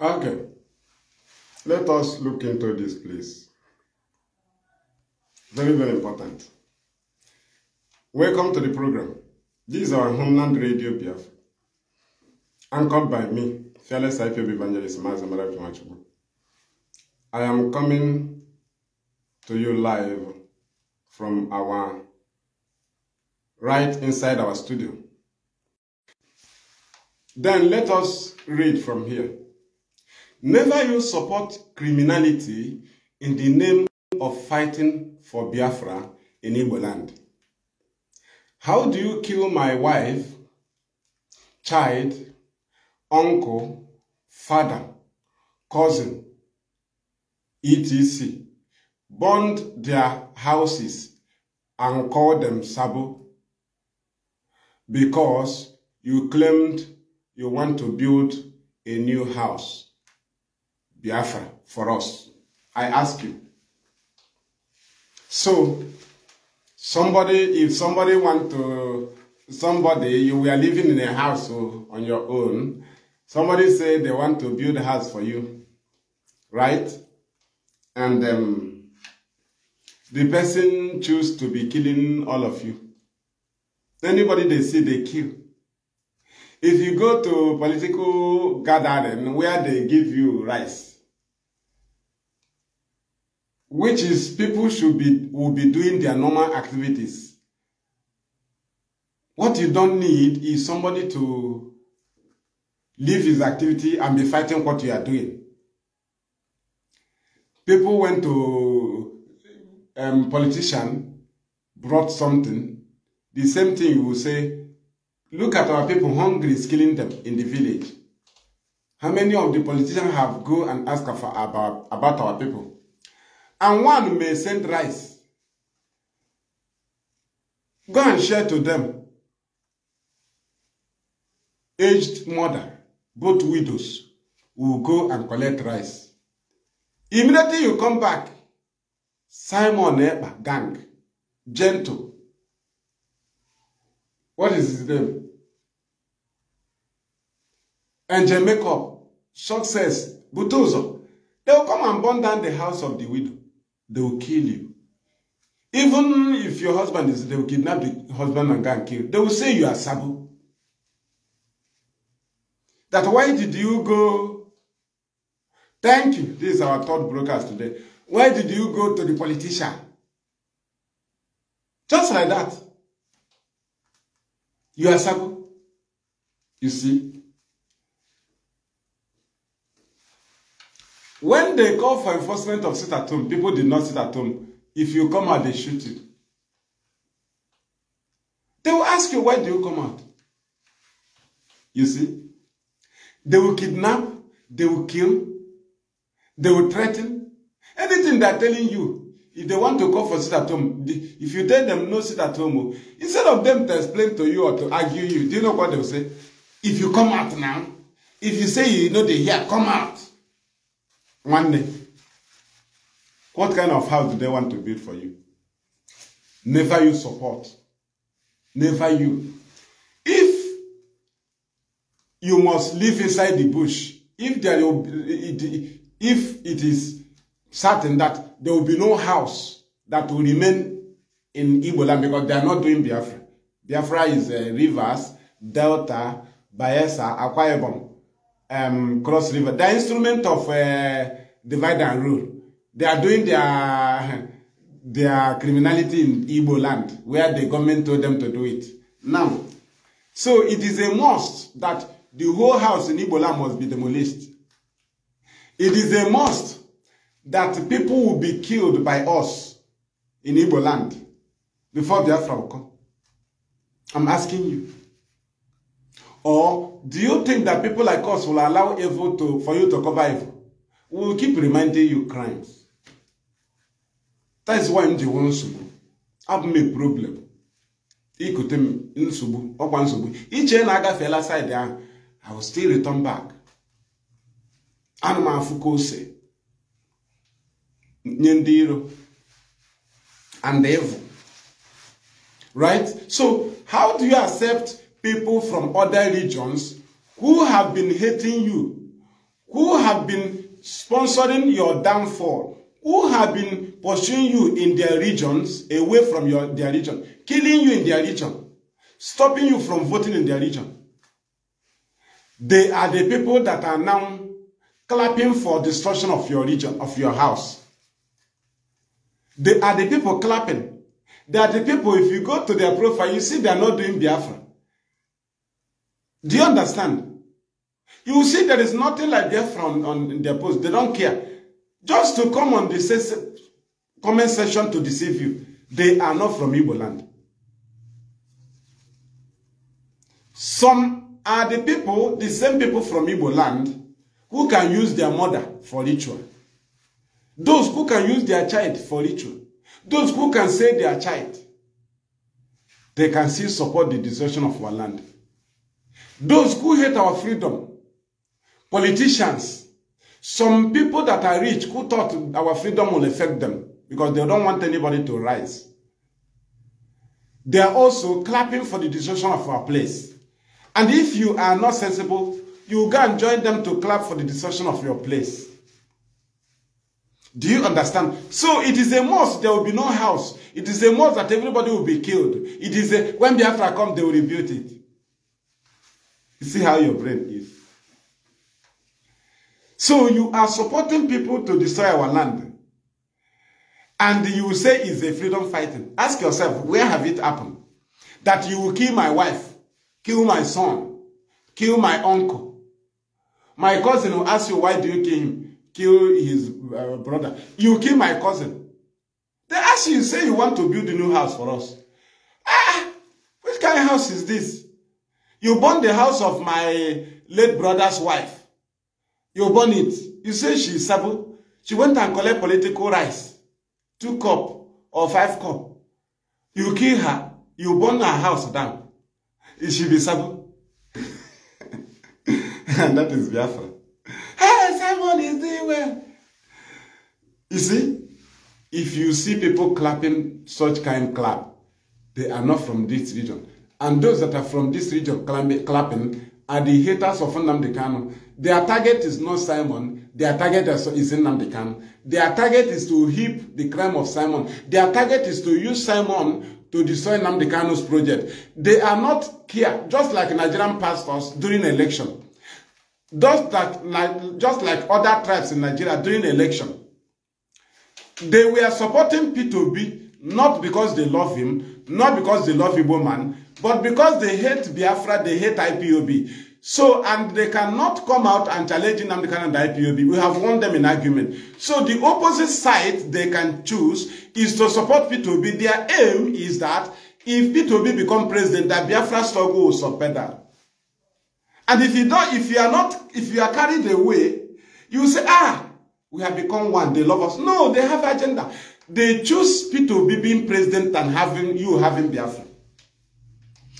Okay. Let us look into this, please. Very, very important. Welcome to the program. This is our homeland radio PF, anchored by me, fearless IPB evangelist Mazamara Pimachubu. I am coming to you live from our right inside our studio. Then let us read from here. Never you support criminality in the name of fighting for Biafra in Igbo land. How do you kill my wife, child, uncle, father, cousin, etc., Burn their houses and call them Sabo because you claimed you want to build a new house? Biafra for us. I ask you. So, somebody, if somebody want to, somebody, you were living in a house on your own, somebody say they want to build a house for you, right? And um, the person choose to be killing all of you. Anybody they see, they kill. If you go to political gathering where they give you rice, which is people should be will be doing their normal activities. What you don't need is somebody to leave his activity and be fighting what you are doing. People went to um, politician, brought something. The same thing you will say, look at our people, hungry is killing them in the village. How many of the politicians have go and ask for, about, about our people? and one may send rice. Go and share to them. Aged mother, both widows, will go and collect rice. Immediately you come back, Simon Epa gang, gentle. What is his name? And Jamaica, success, Butozo. They will come and burn down the house of the widow they will kill you. Even if your husband is, they will kidnap the husband and go and kill. They will say you are Sabo. That why did you go? Thank you. This is our third broadcast today. Why did you go to the politician? Just like that. You are Sabo. You see? When they call for enforcement of sit at home, people did not sit at home. If you come out, they shoot you. They will ask you, why do you come out? You see? They will kidnap, they will kill, they will threaten. Anything they are telling you, if they want to call for sit at home, if you tell them no sit at home, oh, instead of them to explain to you or to argue you, do you know what they will say? If you come out now, if you say you know they here, come out nwanne what kind of house do they want to build for you never you support never you if you must live inside the bush if there will be, if it is certain that there will be no house that will remain in Igbo because they are not doing Biafra. Biafra is uh, rivers, delta, Bayelsa, Akwa Ibom. um, Cross River. The instrument of uh, divide and rule. They are doing their their criminality in Igbo land, where the government told them to do it. Now, so it is a must that the whole house in Igbo land must be demolished. It is a must that people will be killed by us in Igbo land before Biafra will come. I'm asking you. Or Do you think that people like us will allow evil to, for you to cover evil? We will keep reminding you crimes. That is why m ji nwee nsogbu. Abụ m a problem. Ikute m nsogbu, ọkwa nsogbu. Iche na agafeela side ahụ, I will still return back. Ana m afụ ka ose and evil. Right? So, how do you accept people from other regions who have been hating you, who have been sponsoring your downfall, who have been pursuing you in their regions, away from your, their region, killing you in their region, stopping you from voting in their region. They are the people that are now clapping for destruction of your region, of your house. They are the people clapping. They are the people, if you go to their profile, you see they are not doing Biafra. Do you understand? You see, there is nothing like that from on their post. They don't care. Just to come on the comment section to deceive you, they are not from Igbo land. Some are the people, the same people from Igbo land, who can use their mother for ritual. Those who can use their child for ritual. Those who can save their child. They can still support the destruction of our land. Those who hate our freedom politicians, some people that are rich who thought our freedom will affect them because they don't want anybody to rise. They are also clapping for the destruction of our place. And if you are not sensible, you go and join them to clap for the destruction of your place. Do you understand? So it is a must. There will be no house. It is a must that everybody will be killed. It is a, when Biafra come, they will rebuild it. You see how your brain is. So you are supporting people to destroy our land. And you say it's a freedom fighting. Ask yourself, where have it happened? That you will kill my wife, kill my son, kill my uncle. My cousin will ask you, why do you kill him? Kill his uh, brother. You kill my cousin. They ask you, say you want to build a new house for us. Ah, which kind of house is this? You burn the house of my late brother's wife. You burn it. You say she is sabo. She went and collect political rice. Two cup or five cup. You kill her. You burn her house down. Is she be sabo? and that is Biafra. Hey, Simon is doing well. You see, if you see people clapping such kind clap, they are not from this region. And those that are from this region clapping are the haters of Nnamdi Kanu. Their target is not Simon. Their target is Nnamdi Kanu. Their target is to heap the crime of Simon. Their target is to use Simon to destroy Nnamdi Kanu's project. They are not here, just like Nigerian pastors during election. Just like, just like other tribes in Nigeria during election. They were supporting P2B not because they love him, not because they love Igbo man, but because they hate Biafra, they hate IPOB. So, and they cannot come out and challenge Nnamdi Kanu and the IPOB. We have won them in argument. So the opposite side they can choose is to support P2B. Their aim is that if P2B become president, that Biafra struggle will that. And if you don't, if you are not, if you are carried away, you say, ah, we have become one, they love us. No, they have agenda. They choose P2B being president and having you having Biafra.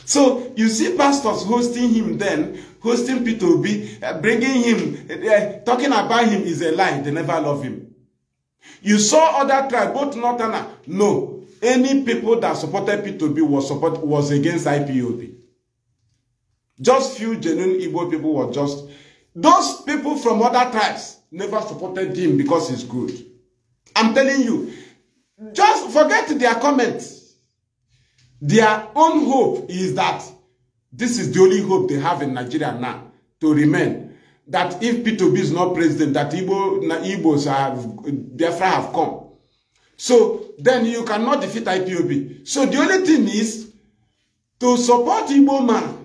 So you see pastors hosting him then, hosting Peter Obi, uh, bringing him, uh, uh, talking about him is a lie. They never love him. You saw other tribes, both Northerner. No, any people that supported Peter Obi was, support, was against IPOB. Just few genuine Igbo people were just... Those people from other tribes never supported him because he's good. I'm telling you, just forget their comments. Their own hope is that this is the only hope they have in Nigeria now to remain. That if P2B is not president, that Igbo, Igbos have, Biafra have come. So then you cannot defeat IPOB. So the only thing is to support Igbo man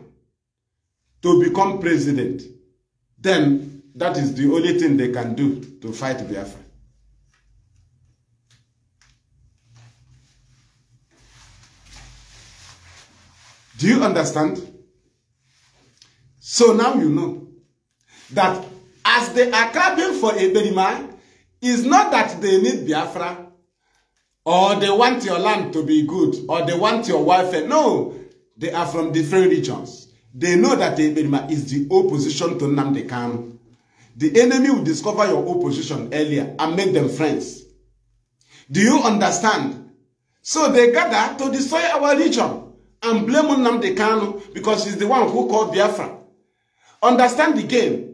to become president. Then that is the only thing they can do to fight Biafra. Do you understand? So now you know that as they are clapping for a Eberima, it's not that they need Biafra or they want your land to be good or they want your welfare. No, they are from different regions. They know that Eberima is the opposition to Nnamdi Kanu. The enemy will discover your opposition earlier and make them friends. Do you understand? So they gather to destroy our region and blame Nnamdi Kanu because he's the one who called Biafra. Understand the game.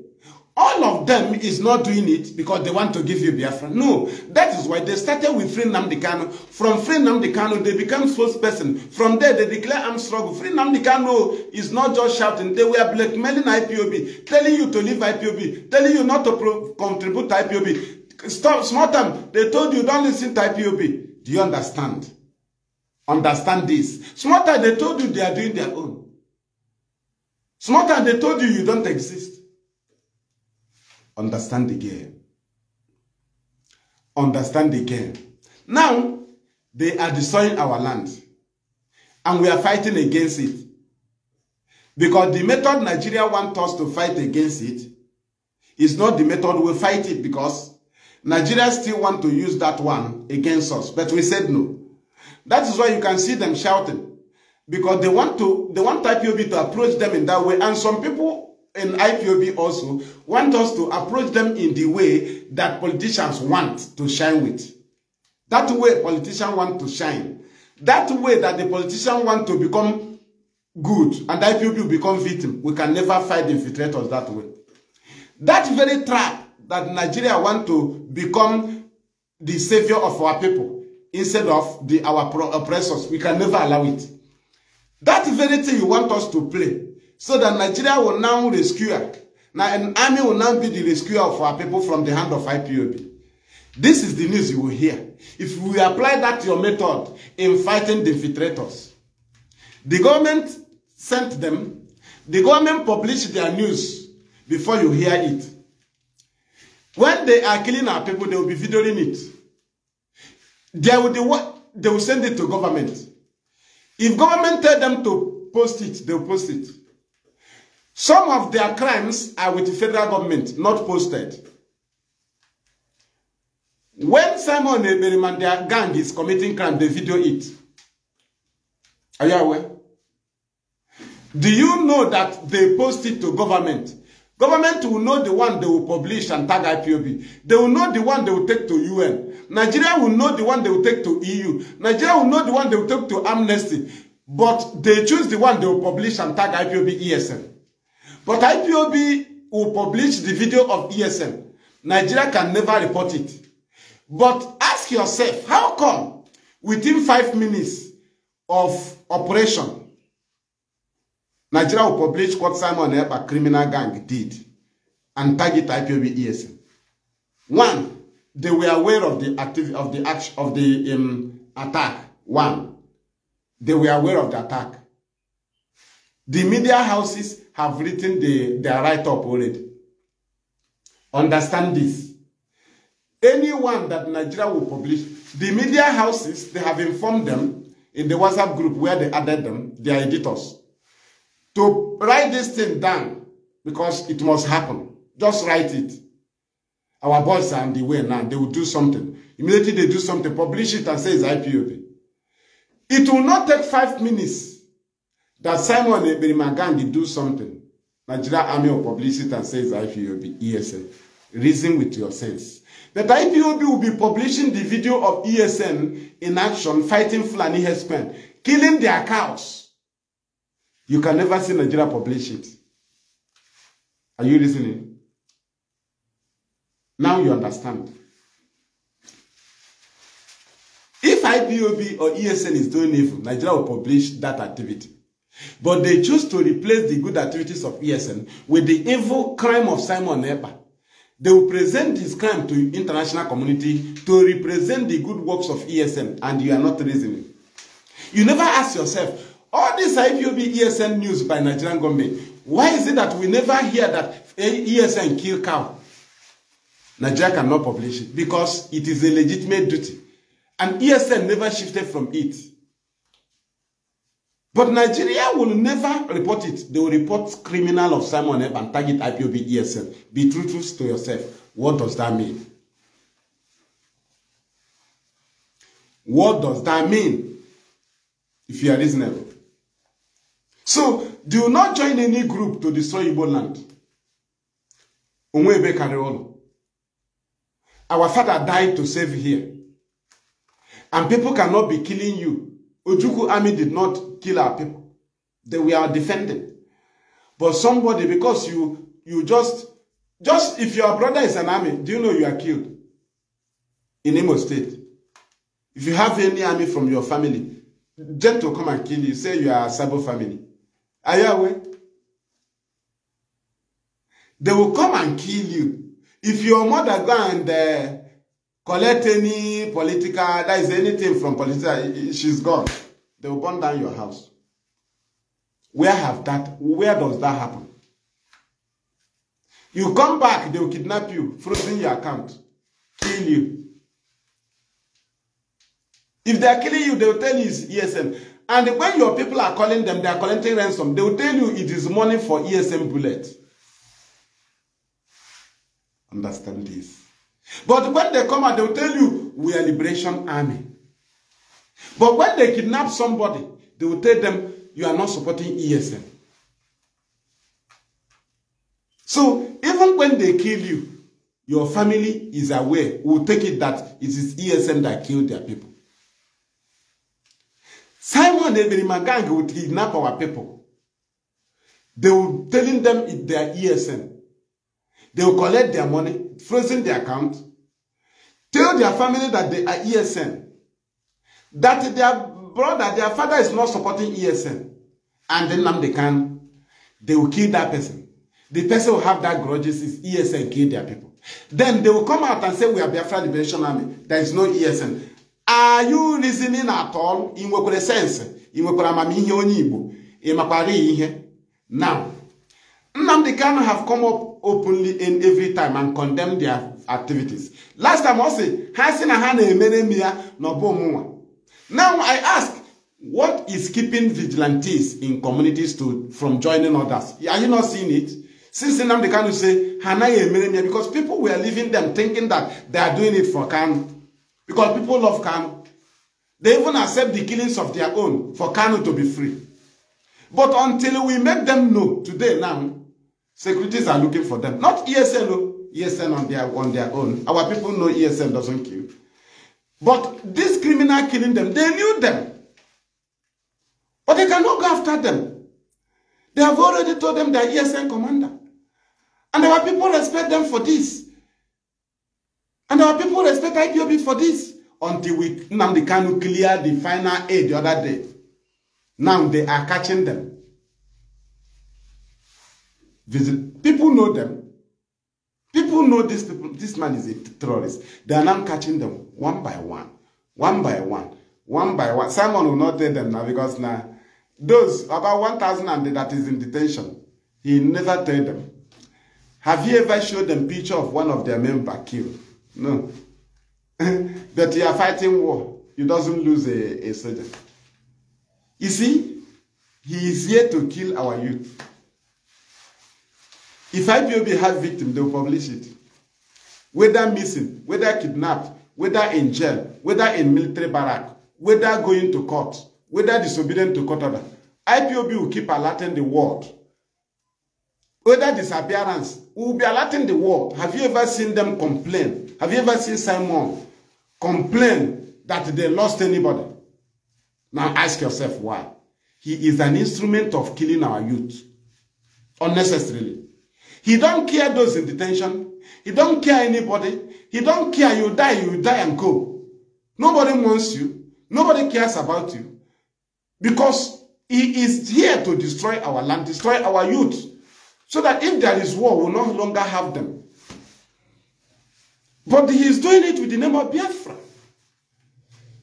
All of them is not doing it because they want to give you Biafra. No, that is why they started with Free Nnamdi Kanu. From Free Nnamdi Kanu, they become spokesperson. From there, they declare armed struggle. Free Nnamdi Kanu is not just shouting. They were blackmailing IPOB, telling you to leave IPOB, telling you not to contribute to IPOB. Stop, small time, they told you don't listen to IPOB. Do you understand? Understand this. Small time they told you they are doing their own. Small time they told you you don't exist. Understand again. Understand again. Now, they are destroying our land. And we are fighting against it. Because the method Nigeria wants us to fight against it is not the method we fight it because Nigeria still want to use that one against us. But we said no. That is why you can see them shouting because they want to they want IPOB to approach them in that way. And some people in IPOB also want us to approach them in the way that politicians want to shine with. That way politicians want to shine. That way that the politicians want to become good and IPOB become victim. We can never fight infiltrators that way. That very trap that Nigeria want to become the savior of our people instead of the, our oppressors. We can never allow it. That very thing you want us to play, so that Nigeria will now rescue her. Now, an army will now be the rescuer of our people from the hand of IPOB. This is the news you will hear. If we apply that your method in fighting the infiltrators, the government sent them, the government published their news before you hear it. When they are killing our people, they will be videoing it. They will, they, they will send it to government. If government tell them to post it, they will post it. Some of their crimes are with the federal government, not posted. When Simon Eberim their gang is committing crime, they video it. Are you aware? Do you know that they post it to government? Government will know the one they will publish and tag IPOB. They will know the one they will take to UN. Nigeria will know the one they will take to EU. Nigeria will know the one they will take to Amnesty. But they choose the one they will publish and tag IPOB ESN. But IPOB will publish the video of ESN. Nigeria can never report it. But ask yourself, how come within five minutes of operation, Nigeria will publish what Simon Ekpa criminal gang did and target IPOB ESN. One, they were aware of the activity of the action of the um, attack. One, they were aware of the attack. The media houses have written the, their write-up already. Understand this. Anyone that Nigeria will publish, the media houses, they have informed them in the WhatsApp group where they added them, their editors to write this thing down because it must happen. Just write it. Our boys are on the way now. They will do something. Immediately they do something, publish it and say it's IPOB. It will not take five minutes that Simon Eberimagandi do something. Nigeria Army will publish it and say it's IPOB, ESN. Reason with your sense. That IPOB will be publishing the video of ESN in action fighting Fulani headsmen, killing their cows. You can never see Nigeria publish it. Are you listening? Now you understand. If IPOB or ESN is doing evil, Nigeria will publish that activity. But they choose to replace the good activities of ESN with the evil crime of Simon Eber. They will present this crime to international community to represent the good works of ESN and you are not listening. You never ask yourself, All this IPOB ESN news by Nigerian government. Why is it that we never hear that ESN kill cow? Nigeria cannot publish it because it is a legitimate duty. And ESN never shifted from it. But Nigeria will never report it. They will report criminal of Simon Eb and target IPOB ESN. Be truthful to yourself. What does that mean? What does that mean? If you are reasonable. So do not join any group to destroy Igbo land. Onwebe Kareolo. Our father died to save here. And people cannot be killing you. Ojuku army did not kill our people. They were defending. But somebody, because you you just, just if your brother is an army, do you know you are killed? In Imo State. If you have any army from your family, to come and kill you. Say you are a Sabo family. Are you aware? They will come and kill you. If your mother go and uh, collect any political, that is anything from political, she's gone. They will burn down your house. Where have that, where does that happen? You come back, they will kidnap you, frozen your account, kill you. If they are killing you, they will tell you it's ESN. And when your people are calling them, they are collecting ransom, they will tell you it is money for ESM bullet. Understand this. But when they come and they will tell you, we are liberation army. But when they kidnap somebody, they will tell them, you are not supporting ESM. So even when they kill you, your family is aware, will take it that it is ESM that killed their people. Simon and Magang would kidnap our people. They were telling them in their ESN. They will collect their money, frozen their account, tell their family that they are ESN, that their brother, their father is not supporting ESN, and then now they can, they will kill that person. The person will have that grudges is ESN kill their people. Then they will come out and say, we are Biafra Liberation Army. There is no ESN. are you listening at all In what sense ị nwekwara amamihe onye igbo ị makwara ihe now Nnamdi Kanu have come up openly in every time and condemned their activities last time ọ sị ha sị na ha na-emere m now I ask what is keeping vigilantes in communities to from joining others are you not seeing it since Nnamdi Kanu say "Hana anaghị emere because people were leaving them thinking that they are doing it for Kanu Because people love Kano. They even accept the killings of their own for Kano to be free. But until we make them know today now, securities are looking for them. Not ESN, oh. ESN on their, on their own. Our people know ESN doesn't kill. But this criminal killing them, they knew them. But they cannot go after them. They have already told them they are ESN commander. And our people respect them for this. And our people respect IPOB for this until we the Nnamdi Kanu clear the final aid the other day. Now they are catching them. Visit. People know them. People know this people. This man is a terrorist. They are now catching them one by one, one by one, one by one. Simon will not tell them now because now those about 1,000 that is in detention, he never tell them. Have you ever showed them picture of one of their member killed? No. that you are fighting war. he doesn't lose a, a soldier. You see, he is here to kill our youth. If IPOB has victim, they will publish it. Whether missing, whether kidnapped, whether in jail, whether in military barrack, whether going to court, whether disobedient to court order, IPOB will keep alerting the world. Whether disappearance, We will be alerting the world. Have you ever seen them complain? Have you ever seen Simon complain that they lost anybody? Now ask yourself why. He is an instrument of killing our youth. Unnecessarily. He don't care those in detention. He don't care anybody. He don't care you die, you die and go. Nobody wants you. Nobody cares about you. Because he is here to destroy our land, destroy our youth so that if there is war, we will no longer have them. But he is doing it with the name of Biafra.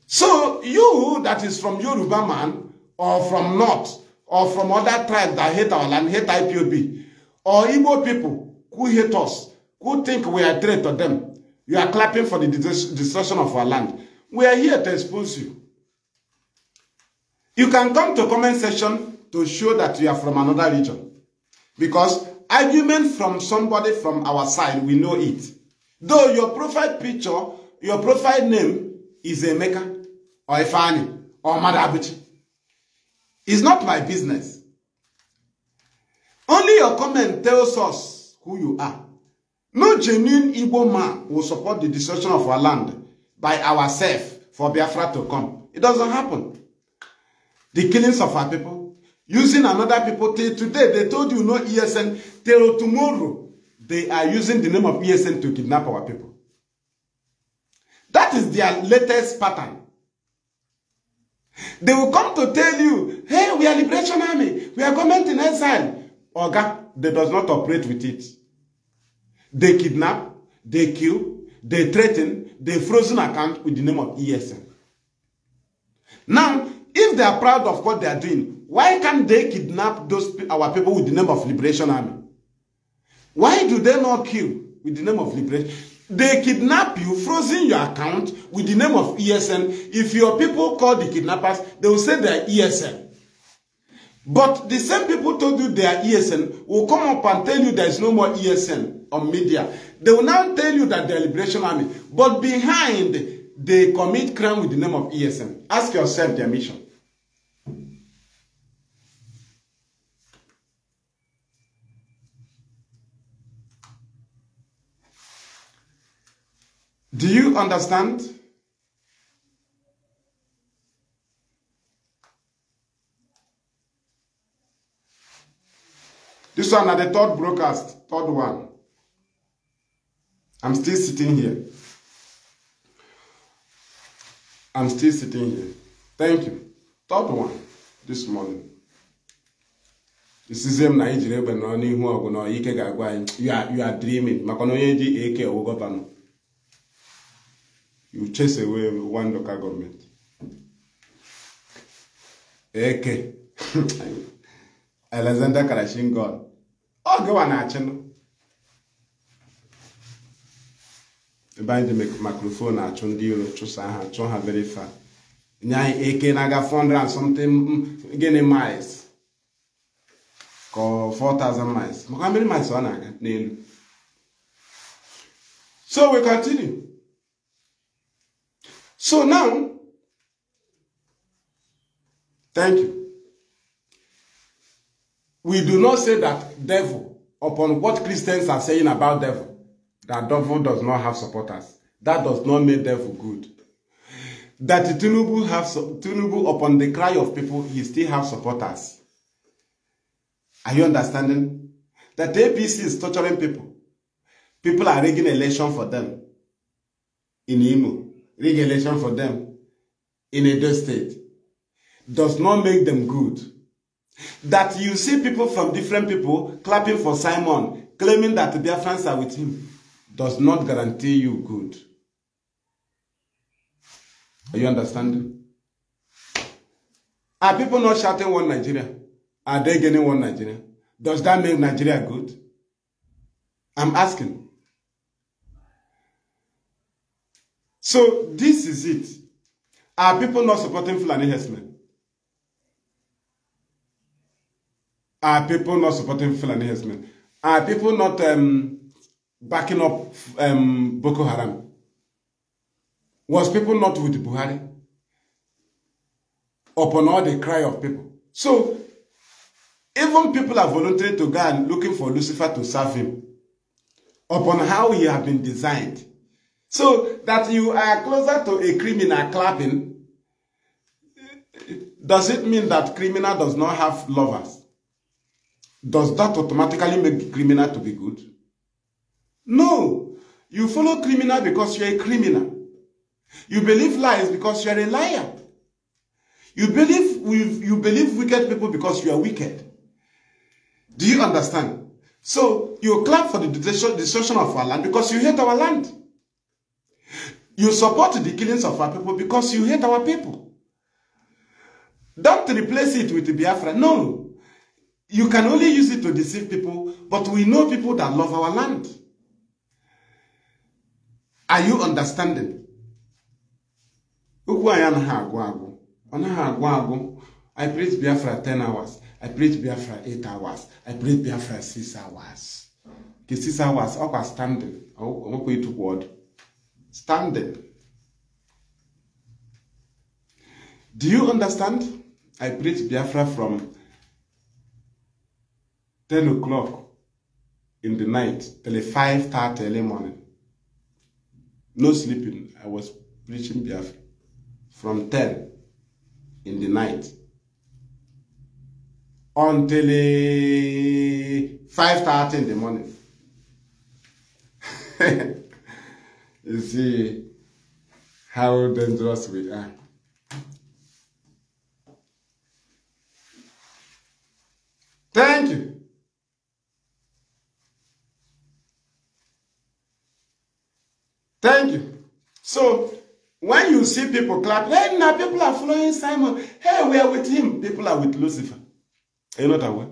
So you that is from Yoruba man, or from North, or from other tribes that hate our land, hate IPOB, or Igbo people who hate us, who think we are threat to them, you are clapping for the destruction of our land. We are here to expose you. You can come to comment section to show that you are from another region. Because argument from somebody from our side, we know it. Though your profile picture, your profile name is Emeka or Ifani or Madabuchi. It's not my business. Only your comment tells us who you are. No genuine Igbo man will support the destruction of our land by ourselves for Biafra to come. It doesn't happen. The killings of our people, using another people till today they told you no ESN till tomorrow they are using the name of ESN to kidnap our people that is their latest pattern they will come to tell you hey we are liberation army we are government in exile oga they does not operate with it they kidnap they kill they threaten they frozen account with the name of ESN now If they are proud of what they are doing, why can't they kidnap those our people with the name of Liberation Army? Why do they not kill with the name of Liberation? They kidnap you, frozen your account with the name of ESN. If your people call the kidnappers, they will say they are ESN. But the same people told you they are ESN will come up and tell you there is no more ESN on media. They will now tell you that they are Liberation Army. But behind, they commit crime with the name of ESN. Ask yourself their mission. Do you understand? This one at the third broadcast, third one. I'm still sitting here. I'm still sitting here. Thank you. Third one this morning. This is na anyị jiri egbe nọrọ n'ihu ọgụ na ike ga you are dreaming Makono na onye ji eke you chase away one local government. Eke. Alexander Karashin God. Ọ gịwa na-achịnụ. Ebe anyị ji microphone achụ ndị iro chụsa ha chụọ ha very far. Nye anyị eke na-aga 400 and something mm, gịnị miles. Ka 4,000 miles. Maka mmiri miles ọ na-aga So we continue. So now, thank you. We do not say that devil, upon what Christians are saying about devil, that devil does not have supporters. That does not make devil good. That tunubu have, tunubu. upon the cry of people, he still have supporters. Are you understanding? That APC is torturing people. People are rigging election for them in Imo. regulation for them in a state does not make them good. That you see people from different people clapping for Simon, claiming that their friends are with him, does not guarantee you good. Are you understanding? Are people not shouting one Nigeria? Are they getting one Nigeria? Does that make Nigeria good? I'm asking. So this is it. Are people not supporting Fulani Hesman? Are people not supporting Fulani Hesman? Are people not um, backing up um, Boko Haram? Was people not with Buhari? Upon all the cry of people. So, even people are volunteering to go and looking for Lucifer to serve him. Upon how he has been designed. So that you are closer to a criminal clapping, does it mean that criminal does not have lovers? Does that automatically make criminal to be good? No. You follow criminal because you're a criminal. You believe lies because you're a liar. You believe, you believe wicked people because you are wicked. Do you understand? So you clap for the destruction of our land because you hate our land. You support the killings of our people because you hate our people. Don't replace it with Biafra. No. You can only use it to deceive people, but we know people that love our land. Are you understanding? Ukwu anyị anaghị agwụ agwụ. I preach Biafra 10 hours. I preach Biafra 8 hours. I preach Biafra 6 hours. The 6 hours, ọkwa standing, ọkwa ịtụkwa ọdụ. standing. Do you understand? I preach Biafra from 10 o'clock in the night till 5.30 early morning. No sleeping. I was preaching Biafra from 10 in the night until 5.30 in the morning. you see how dangerous we are. Thank you. Thank you. So, when you see people clap, hey, now people are following Simon. Hey, we are with him. People are with Lucifer. Are you not aware?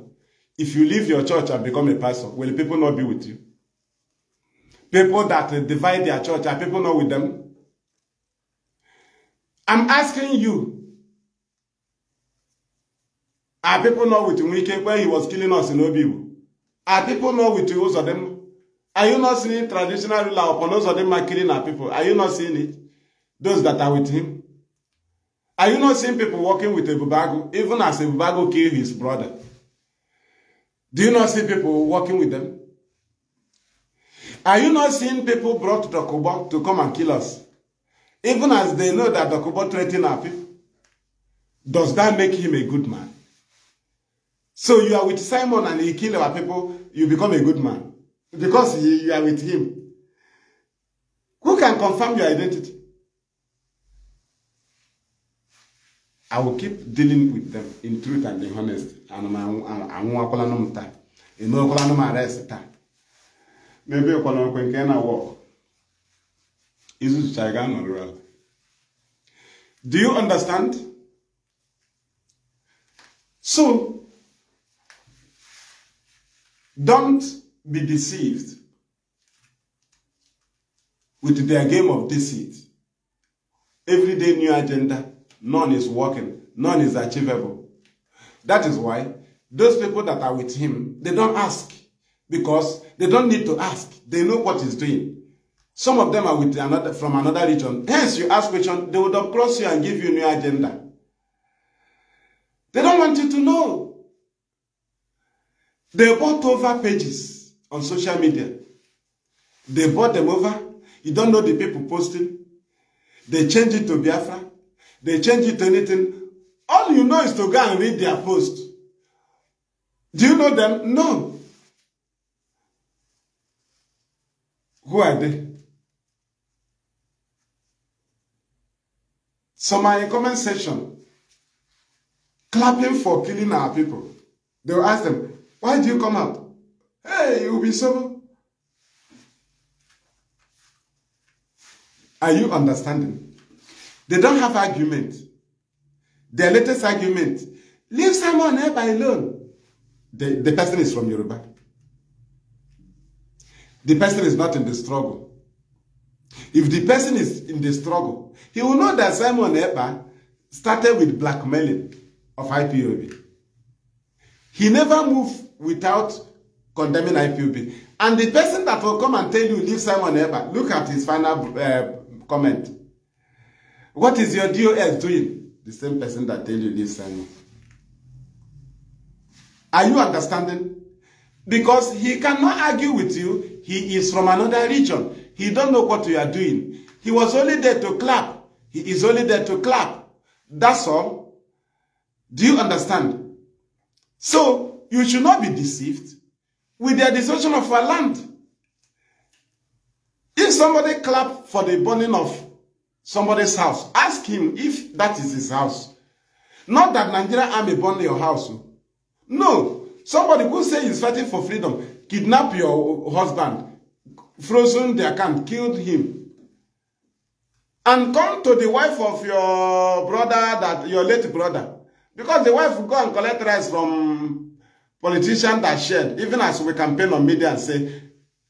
If you leave your church and become a pastor, will people not be with you? People that divide their church, are people not with them? I'm asking you, are people not with Nwike when he was killing us in Obibu? Are people not with those of them? Are you not seeing traditional ruler upon those of them are killing our people? Are you not seeing it? Those that are with him? Are you not seeing people working with Ebubago, even as Ebubago killed his brother? Do you not see people working with them? Are you not seeing people brought to Dokubo to come and kill us? Even as they know that Dokubo threatened our people. Does that make him a good man? So you are with Simon and he kill our people, you become a good man. Because you are with him. Who can confirm your identity? I will keep dealing with them in truth and in honesty. And I won't call them time. I won't call them arrest time n'ebe ekwenokwe nke na wọk izuzucha ga anọrọ ala do you understand so don't be deceived with their game of deceit everyday new agenda none is working none is achievable that is why those people that are with him they don't ask because They don't need to ask. They know what he's doing. Some of them are with another, from another region. Hence, you ask question, they would cross you and give you new agenda. They don't want you to know. They bought over pages on social media. They bought them over. You don't know the people posting. They change it to Biafra. They change it to anything. All you know is to go and read their post. Do you know them? No. Who are in comment section clapping for killing our people. They will ask them, why do you come out? Hey, you'll be so. Are you understanding? They don't have argument. Their latest argument, leave someone help alone. The, the person is from Yoruba the person is not in the struggle. If the person is in the struggle, he will know that Simon Ekpa started with blackmailing of IPOB. He never moved without condemning IPOB. And the person that will come and tell you, leave Simon Ekpa, look at his final uh, comment. What is your DOS doing? The same person that tell you, leave Simon. Are you understanding? Because he cannot argue with you. He is from another region. He don't know what you are doing. He was only there to clap. He is only there to clap. That's all. Do you understand? So, you should not be deceived with their destruction of our land. If somebody clap for the burning of somebody's house, ask him if that is his house. Not that Nigeria army burned your house. No. Somebody who say he's fighting for freedom, kidnap your husband, frozen the account, killed him. And come to the wife of your brother, that your late brother. Because the wife go and collect rice from politician that shared, even as we campaign on media and say,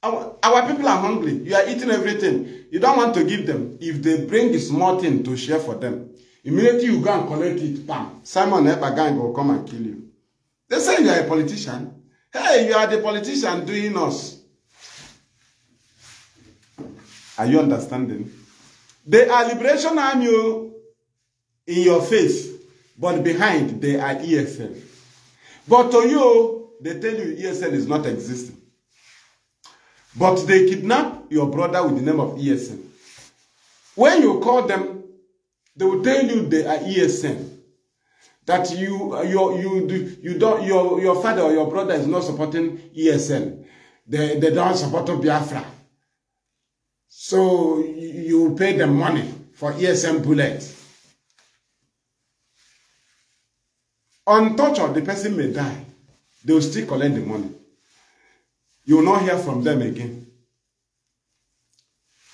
our, our people are hungry. You are eating everything. You don't want to give them. If they bring a small thing to share for them, immediately you go and collect it, bam. Simon Epagang will come and kill you. They say you are a politician. Hey, you are the politician doing us. Are you understanding? They are liberation army oh, in your face, but behind they are ESL. But to you, they tell you ESL is not existing. But they kidnap your brother with the name of ESL. When you call them, they will tell you they are ESL. that you your you do you don't your your father or your brother is not supporting ESN. They they don't support Biafra. So you pay them money for ESM bullets. On torture, the person may die. They will still collect the money. You will not hear from them again.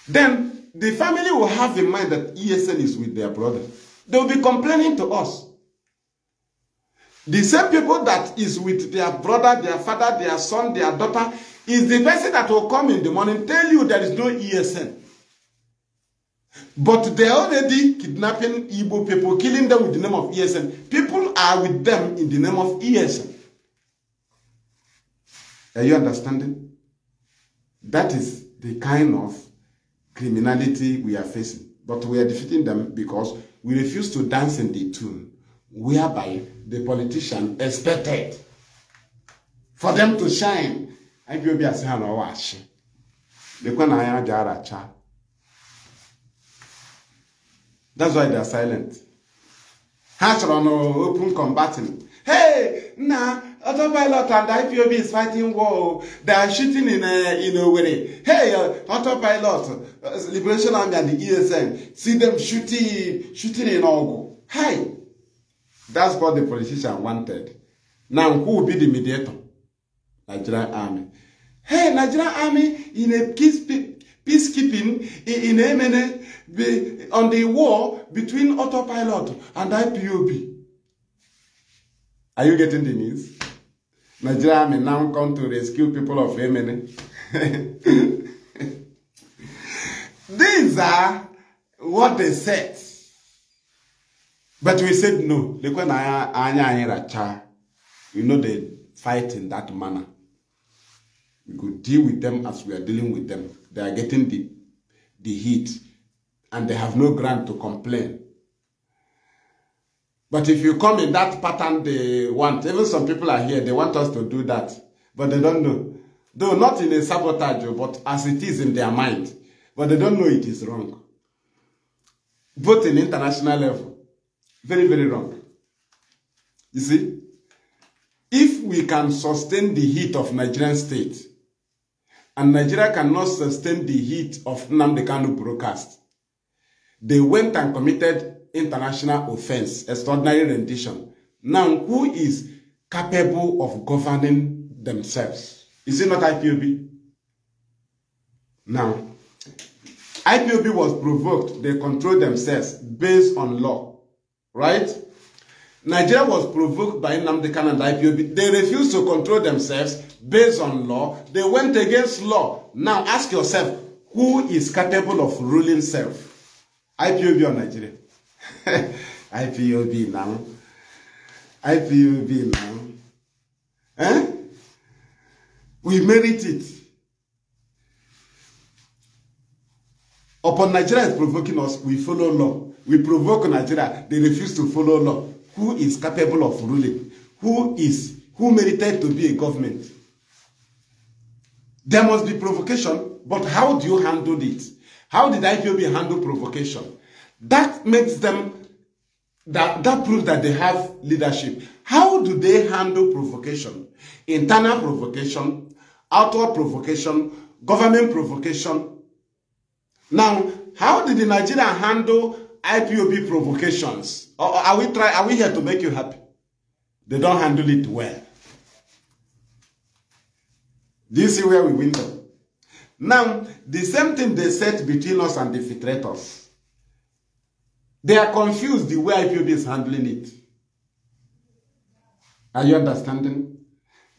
Then the family will have in mind that ESN is with their brother. They will be complaining to us. The same people that is with their brother, their father, their son, their daughter, is the person that will come in the morning tell you there is no ESN. But they are already kidnapping Igbo people, killing them with the name of ESN. People are with them in the name of ESN. Are you understanding? That is the kind of criminality we are facing. But we are defeating them because we refuse to dance in the tune. whereby the politician expected for them to shine. And you'll be as hell or wash. The Kwanaya Jaracha. That's why they are silent. Hatcher on open combatant. Hey, nah, autopilot and IPOB is fighting war. They are shooting in a, eh, in a way. Hey, uh, autopilot, uh, Liberation Army and the ESN, see them shooting, shooting in Ogu. Hey, That's what the politician wanted. Now, who will be the mediator? Nigerian army. Hey, Nigerian army in a peace, peacekeeping in, in MNA on the war between autopilot and IPOB. Are you getting the news? Nigerian army now come to rescue people of MNA. These are what they said. But we said no. You know, they fight in that manner. We could deal with them as we are dealing with them. They are getting the, the heat and they have no ground to complain. But if you come in that pattern they want, even some people are here, they want us to do that, but they don't know. Though not in a sabotage, but as it is in their mind. But they don't know it is wrong. Both in international level very, very wrong. You see, if we can sustain the heat of Nigerian state, and Nigeria cannot sustain the heat of Namdekanu broadcast, they went and committed international offense, extraordinary rendition. Now, who is capable of governing themselves? Is it not IPOB? Now, IPOB was provoked. They controlled themselves based on law. right? Nigeria was provoked by Nnamdi Kanu and IPOB. They refused to control themselves based on law. They went against law. Now ask yourself, who is capable of ruling self? IPOB or Nigeria? IPOB now. IPOB now. Eh? We merit it. Upon Nigeria is provoking us, we follow law. We provoke Nigeria. They refuse to follow law. Who is capable of ruling? Who is who merited to be a government? There must be provocation, but how do you handle it? How did IPOB handle provocation? That makes them, that, that proves that they have leadership. How do they handle provocation? Internal provocation, outward provocation, government provocation. Now, how did the Nigerian handle IPOB provocations. Or are we try? Are we here to make you happy? They don't handle it well. This is where we win them. Now, the same thing they said between us and the filtrators. They are confused the way IPOB is handling it. Are you understanding?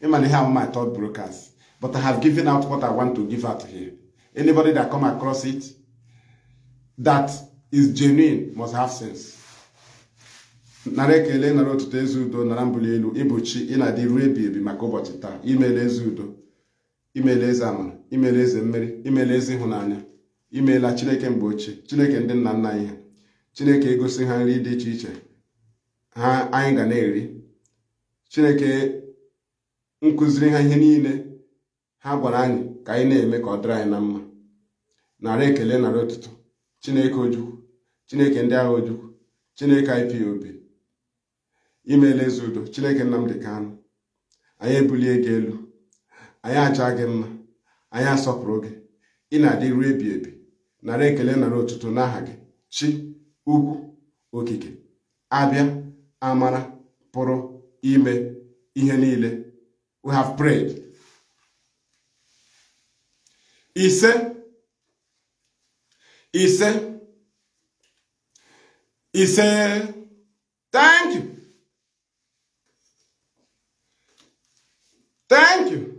Even here my thought brokers. But I have given out what I want to give out here. Anybody that come across it, that is genuine must have sense nara ekele narị ọtụtụ eze udo nara mbụli elu ịbụchi ịna adị ruo ebi ebi maka ụbọchị taa imele eze udo imele eze amara imele eze mmeri imele eze ịhụnanya imela chineke mgbe ochie chineke ndị nna nna anyị ha chineke egosi ha nri dị iche iche ha anyị ga na-eri chineke nkụziri ha ihe niile ha gwara anyị ka anyị na-eme ka ọ dịrị anyị na mma narị ekele narị chineke ojukwu chineke ndị agha ojukwu chineke IPOB imeela eze udo chineke Nnamdi Kanu anyị ebulie gị elu anyị aja gị mma anyị asọpụrụ gị ị na-adị ruo ebi ebi nara ekele nara otuto n'aha gị chi ugwu okike abịa amara pụrụ ime ihe niile we have prayed ise ise He said, Thank you. Thank you.